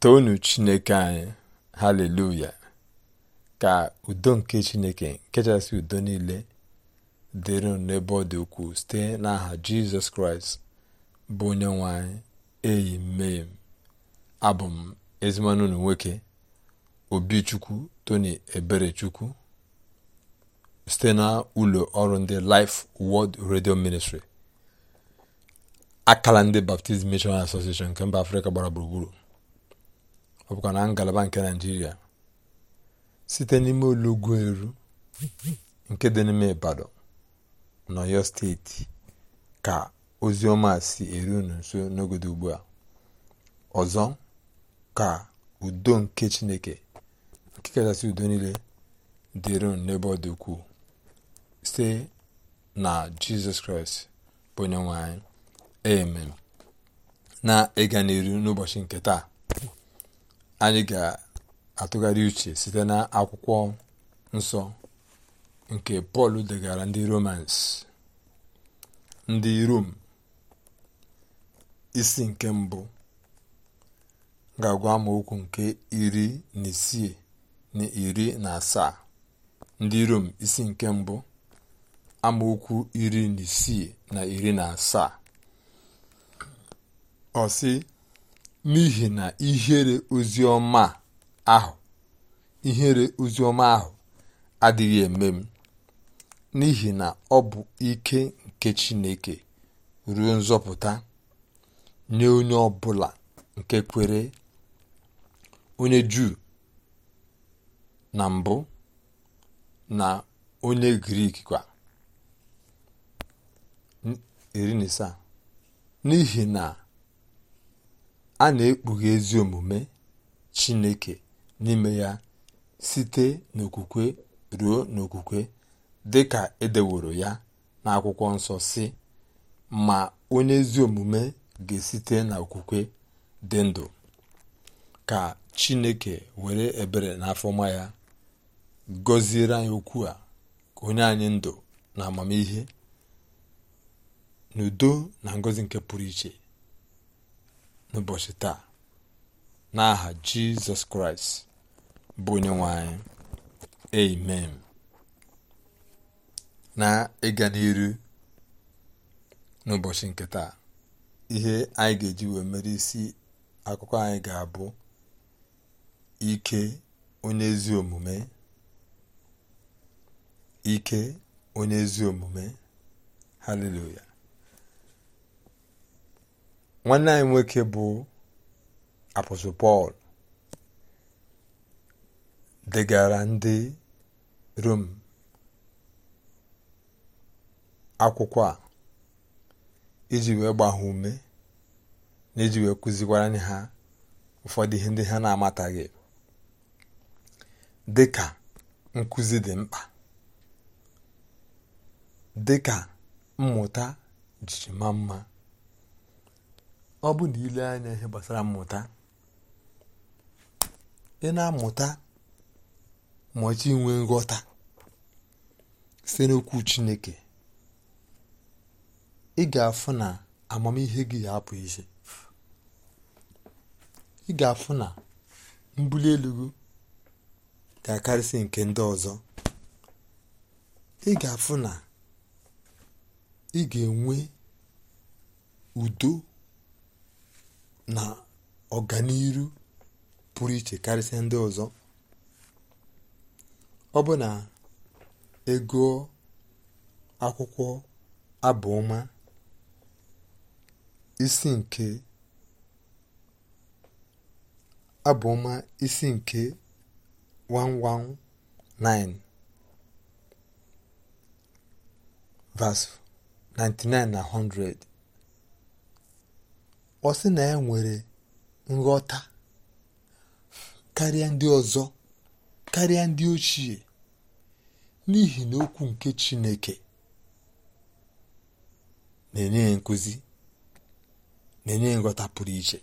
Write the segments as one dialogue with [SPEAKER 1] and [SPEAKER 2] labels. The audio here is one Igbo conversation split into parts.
[SPEAKER 1] toonu chineke anyị haleluya ka udo nke chineke nkechasị udo niile dịrị n'ebe ọ dị ukwuu site n'aha jizọs kraịst bụ onye nwe eyi mee abụ m ezimanụ unu nwoke obichukwu tony eberechukwu site na ụlọ ọrụ ndị Life World Radio Ministry akala ndị Baptist Mission Association nke mba afrịka gbara gburugburu ọ bụkwa e na ngalaba nke naijiria site n'ime olugwu eru nke dị n'ime ibadan n'oyo steeti ka ozi si eru unu nso n'ogodo ugbu a ọzọ ka udo nke chineke nke kachasị udo niile dịrị n'ebe ọ dị ukwuu site na jizọs kraịst bụ onye nwe anyị amen na ịga e n'iru n'ụbọchị nke taa anyị ga-atụgharị uche site na akwụkwọ nsọ nke pọl degara ndị romans ndị rom isi nke mbụ ga-agwa amaokwu nke iri na isii na iri na asaa ndị rom isi nke mbụ amaokwu iri na isii na iri na asaa ọ n'ihi na ihere ozioma ahụ ihere oziọma ahụ adịghị eme m n'ihi na ọ bụ ike nke Chineke ruo nzọpụta nye onye ọbụla nke kwere onye Juu na mbụ na onye Grik kwa iri na isaa n'ihi na a na-ekpughe ezi omume chineke n'ime ya site n'okwukwe ruo n'okwukwe dị ka edeworo ya n'akwụkwọ nsọ si ma onye ezi omume ga-esite n'okwukwe dị ndụ ka chineke were ebere n'afọma ya gọziere anyị okwu a ka onye anyị ndụ na amamihe n'udo na ngọzi nke pụrụ iche n'ụbọchị taa n'aha jizọs kraịst bụ onye nwe anyị amen na ịga n'iru n'ụbọchị nke taa ihe anyị ga-eji wee mere isi akụkọ anyị ga-abụ ike onye ezi omume ike onye ezi omume haleluya nwanne anyị nwoke bụ apọsụ Pọl degara ndị Rom akwụkwọ a iji wee gbaha ume na iji wee kụzikwara anyị ha ụfọdụ ihe ndị ha na-amataghị dịka nkụzi dị mkpa dịka mmụta jiji ma mma ọ bụ na ile anya ihe gbasara mmụta ị na-amụta maọchi inwe nghọta site n'okwu chineke ị ga-afụ na amamihe gị ya apụ ị ga-afụ na mbuli elu gị ga-akarịsị nke ndị ọzọ ị ga-afụ na ị ga-enwe udo na ọganiru pụrụ iche karịsịa ndị ọzọ ọ bụ na ego akwụkwọ abụọma isi nke abụọma isi nke 119 v 99 na 100 ọ sị na ya e nwere nghọta karịa ndị ọzọ karịa ndị ochie n'ihi na okwu nke Chineke na-enye ya na-enye nghọta pụrụ iche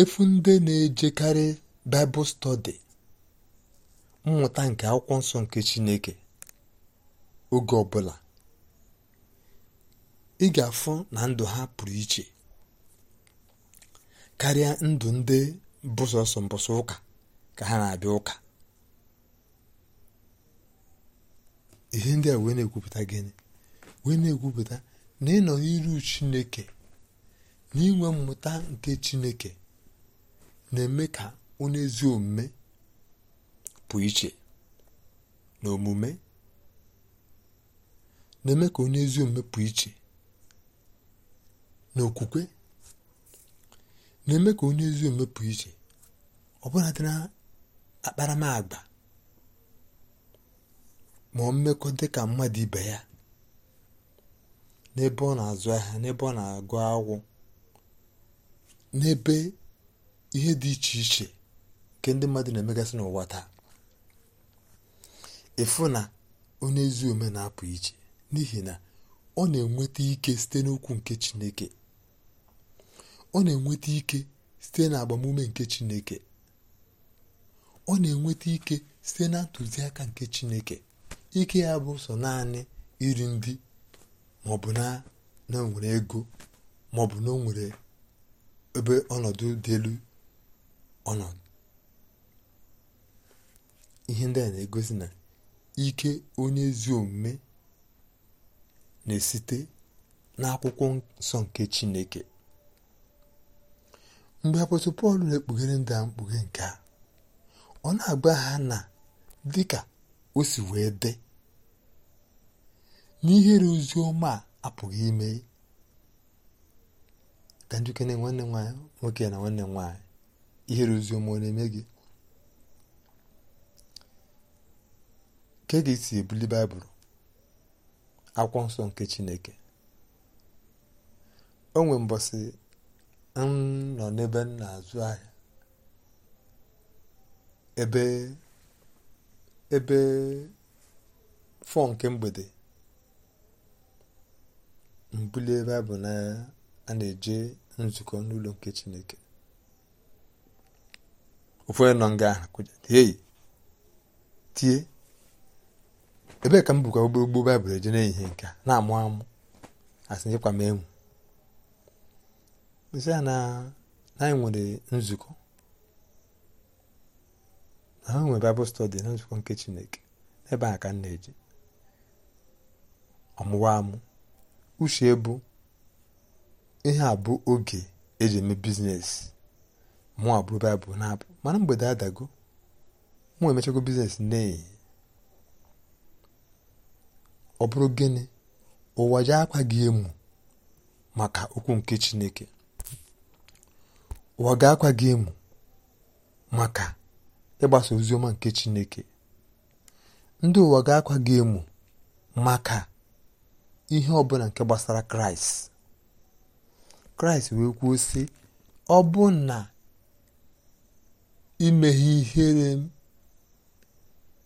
[SPEAKER 1] efu ndị na-ejekarị Baịbụl study mmụta nke akwụkwọ nsọ nke Chineke oge ọbụla ị ga-afụ na ndụ ha pụrụ iche karịa ndụ ndị bụ sọsọ ụka ka ha na-abịa ụka ihe ndị a wee na-ekwupụta gịnị wee na-ekwupụta na ịnọ n'iru chineke na inwe mmụta nke chineke na-eme ka onye ezi omume pụ iche na omume na-eme ka onye ezi omume pụ iche na okwukwe na-eme ka onye ezi omume pụọ iche ọbụla dị na akparamagba ma mmekọ dị ka mmadụ ibe ya n'ebe ọ na-azụ ahịa n'ebe ọ na-agụ akwụ n'ebe ihe dị iche iche nke ndị mmadụ na-emegasị n'ụwa taa ịfụ na onye ezi omume na-apụ iche n'ihi na ọ na-enweta ike site n'okwu nke Chineke ọ na-enweta ike site na agbamume nke chineke ọ na-enweta ike site na ntụziaka nke chineke ike ya bụ sọ naanị iri ndị maọbụ na na ego maọbụ na o ebe ọnọdụ dị elu ọnọdụ ihe ndị a na-egosi na ike onye ezi omume na-esite n'akwụkwọ nsọ nke chineke mgbe apọstụl pọl na-ekpughere ndị a mkpughe nke a ọ na-agba ha na dị ka o si wee dị n'ihere ozi ọma a apụghị ime ka njikere nwanne nwaanyị nwoke na nwanne nwaanyị ihere ozi ọma ọ na-eme gị ka ga-esi ebuli baịbụl akwụkwọ nsọ nke chineke o nwe mbọsị nọ n'ebe m na-azụ ahịa ebe ebe fọ nke mgbede mbulie baịbụl n'anya a na-eje nzukọ n'ụlọ nke chineke ụfọdụ nọ nga ahụ tie ebee ka m bụkwa gbogbo baịbụl eje n'ehihie nke a na-amụ amụ asị nyekwa m enwu gosi ya na anyị nwere nzukọ na ha nwere baịbụl stọdi na nzukọ nke chineke ebe a ka m na eji ọmụwa amụ uche bụ ihe a bụ oge eji eme biznes mụ abụrụ baịbụl na-abụ mana mgbede adago mụ emechago na n'ehi ọ bụrụ gịnị ụwa ji akwa gị emu maka okwu nke chineke ụwa ga-akwa gị emu maka ịgbasa oziọma nke Chineke ndị ụwa ga-akwa gị emu maka ihe ọbụla nke gbasara Kraịst Kraịst wee kwuo sị ọ bụ na imeghe ihere m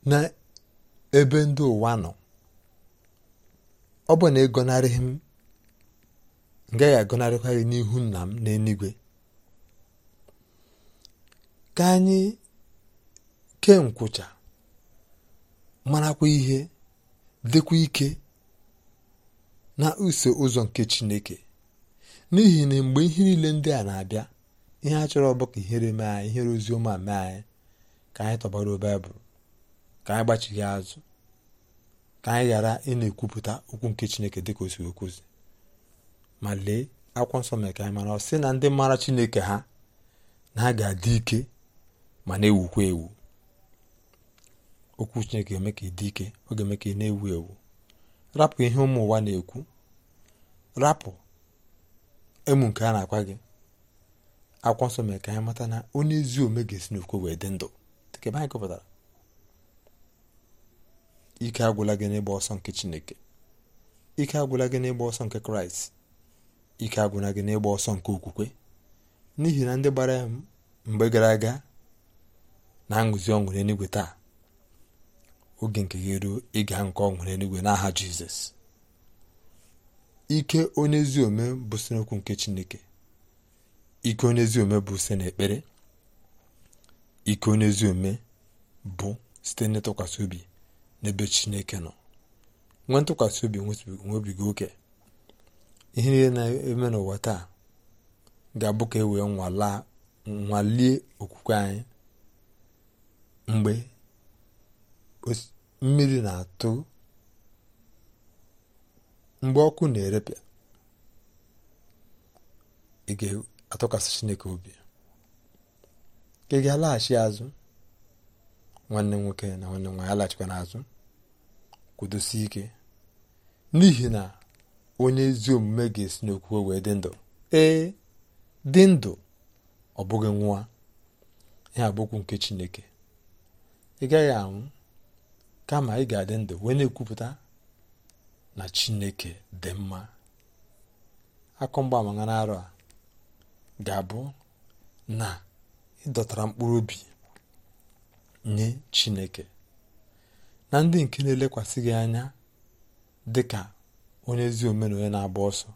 [SPEAKER 1] n'ebe ndị ụwa nọ ọ bụ na ịgọnarịghị m m gaghị gị n'ihu nna m n'eluigwe ka anyị kee nkwụcha marakwa ihe dịkwa ike na use ụzọ nke chineke n'ihi na mgbe ihe niile ndị a na-abịa ihe a chọrọ bụ ka ihere mee anyị ihere ozi ọma mee anyị ka anyị tọgbara baịbụl ka anyị gbachighị azụ ka anyị ghara ị na-ekwupụta okwu nke chineke dịka o si okwuzi ma lee akwụkwọ nsọ mere ka anyị mara ọ sị na ndị mara chineke ha na ha ga-adị ike ma na-ewukwa ewu okwu chineke ga-eme ka ị dị ike ọ ga-eme ka ị na-ewu ewu rapụ ihe ụmụ ụwa na-ekwu rapụ emu nke a na-akwa gị akwụkwọ nsọ mere ka anyị mata na onye ezi ome ga-esi n'okwu wee dị ndụ dịka ebe anyị ike agwụla gị n'ịgba ọsọ nke chineke ike agwụla gị n'ịgba ọsọ nke kraịst ike agwụla gị n'ịgba ọsọ nke okwukwe n'ihi na ndị gbara ya mgbe gara aga na nguzi ọṅụ nwere taa oge nke gị ruo ịga nke ọṅụ n'enigwe na n'aha jizọs ike onye ezi ome bụ sinokwu nke chineke ike onye ezi ome bụ site n'ekpere ike onye ome bụ site n'ịtụkwasị obi n'ebe chineke nọ nwe ntụkwasị obi nwebiga oke ihe niile na-eme n'ụwa taa ga-abụ ka e wee nwalie okwukwe anyị mgbe mmiri na-atụ mgbe ọkụ na-erepịa ị ga-atụkwasị chineke obi ị ga-alaghachi azụ nwanne nwoke na nwanne nwaanyị alaghachikwa n'azụ kwudosie ike n'ihi na onye ezi omume ga-esi n'okwukwe wee dị ndụ ee dị ndụ ọ bụghị nwa ihe abụkwu nke chineke ị gaghị anwụ kama ị ga-adị ndụ wee na-ekwupụta na chineke dị mma akụ na n'arọ a ga-abụ na ịdọtara mkpụrụ obi nye chineke na ndị nke na-elekwasị gị anya dị ka onye ezi omen na-agba ọsọ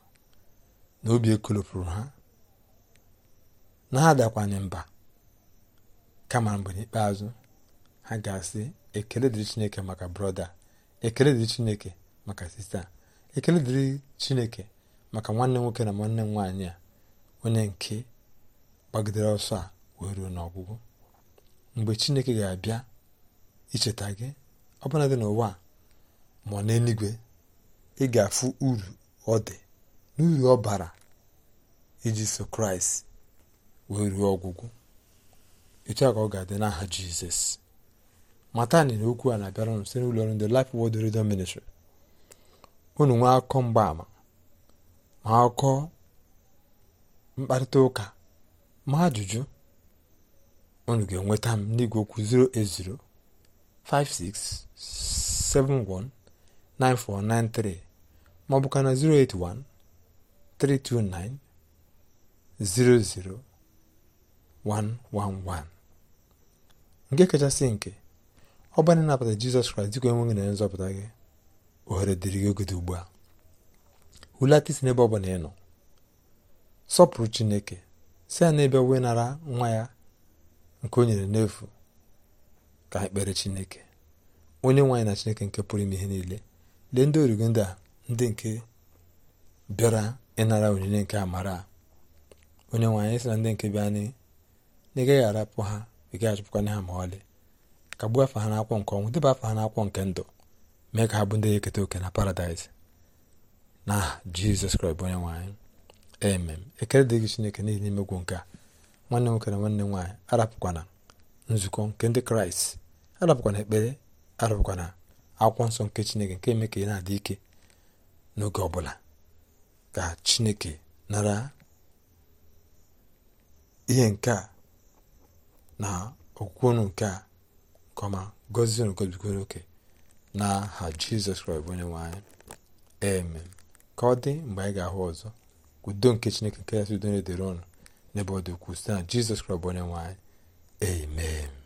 [SPEAKER 1] na obi ekolopụrụ ha na ha dakwanye mba kama mgbe n'ikpeazụ ha ga-asị ekele dịrị chineke maka brọda ekele dịrị chineke maka sista ekele dịrị chineke maka nwanne nwoke na nwanne nwaanyị a onye nke gbagidere ọsọ a wee ruo n'ọgwụgwụ mgbe chineke ga-abịa icheta gị ọbụla dị n'ụwa ma ọ n'eluigwe ị ga-afụ uru ọ dị n'uru ọ bara iji so kraịst wee ruo ọgwụgwụ etu ka ọ ga-adị n'aha jizọs matani na okwu a na-abịara unu site n'ụlọ ọrụ ndị Life Word Radio Ministry unu nwee akụkọ mgbaama ma akụkọ mkparịta ụka ma ajụjụ unu ga-enweta m n'igwe okwu 08056719493 ma ọ bụ ka na 08132900111 nke kachasị nke ọ bụrụ na ịnabata jizọs kraịst dịka onye nwe na nzọpụta gị ohere dịrị gị ogede ugbu a hulata isi n'ebe ọ bụla ị nọ sọpụrụ chineke si ya n'ebe wee nara nwa ya nke o nyere n'efu ka ekpere chineke onye nwaanyị na chineke nke pụrụ ime ihe niile lee ndị origo ndị a ndị nke bịara ịnara onyinye nke amara onye nwaanyị sị na ndị nke bịa na ị gaghị arapụ ha ị gaghị achụpụkwanye ha ma ọlị kagbuo afa ha n'akwụkwọ nke ọnwụ deba afa ha n'akwụkwọ nke ndụ mee ka ha bụ ndị eketa oke na paradaịs na jizọs kraịst bụ onye nwaanyị emem ekele dịghị chineke n'ihi n'imegwu nke a nwanne nwoke na nwanne nwaanyị arapụkwana nzukọ nke ndị kraịst arapụkwana ekpere arapụkwana akwụkwọ nsọ nke chineke nke eme ka ị na-adị ike n'oge ọbụla ka chineke nara ihe nke a na okwukwe nke a nke ọma gọzie unu gọzibikwa n'oke n'aha jizọs kraịst onye nwe eme ka ọ dị mgbe anyị ga-ahụ ọzọ udo nke chineke nke ya sị ọnụ n'ebe ọ dị ukwuu site na jizọs kraịst bụ onye nwe anyị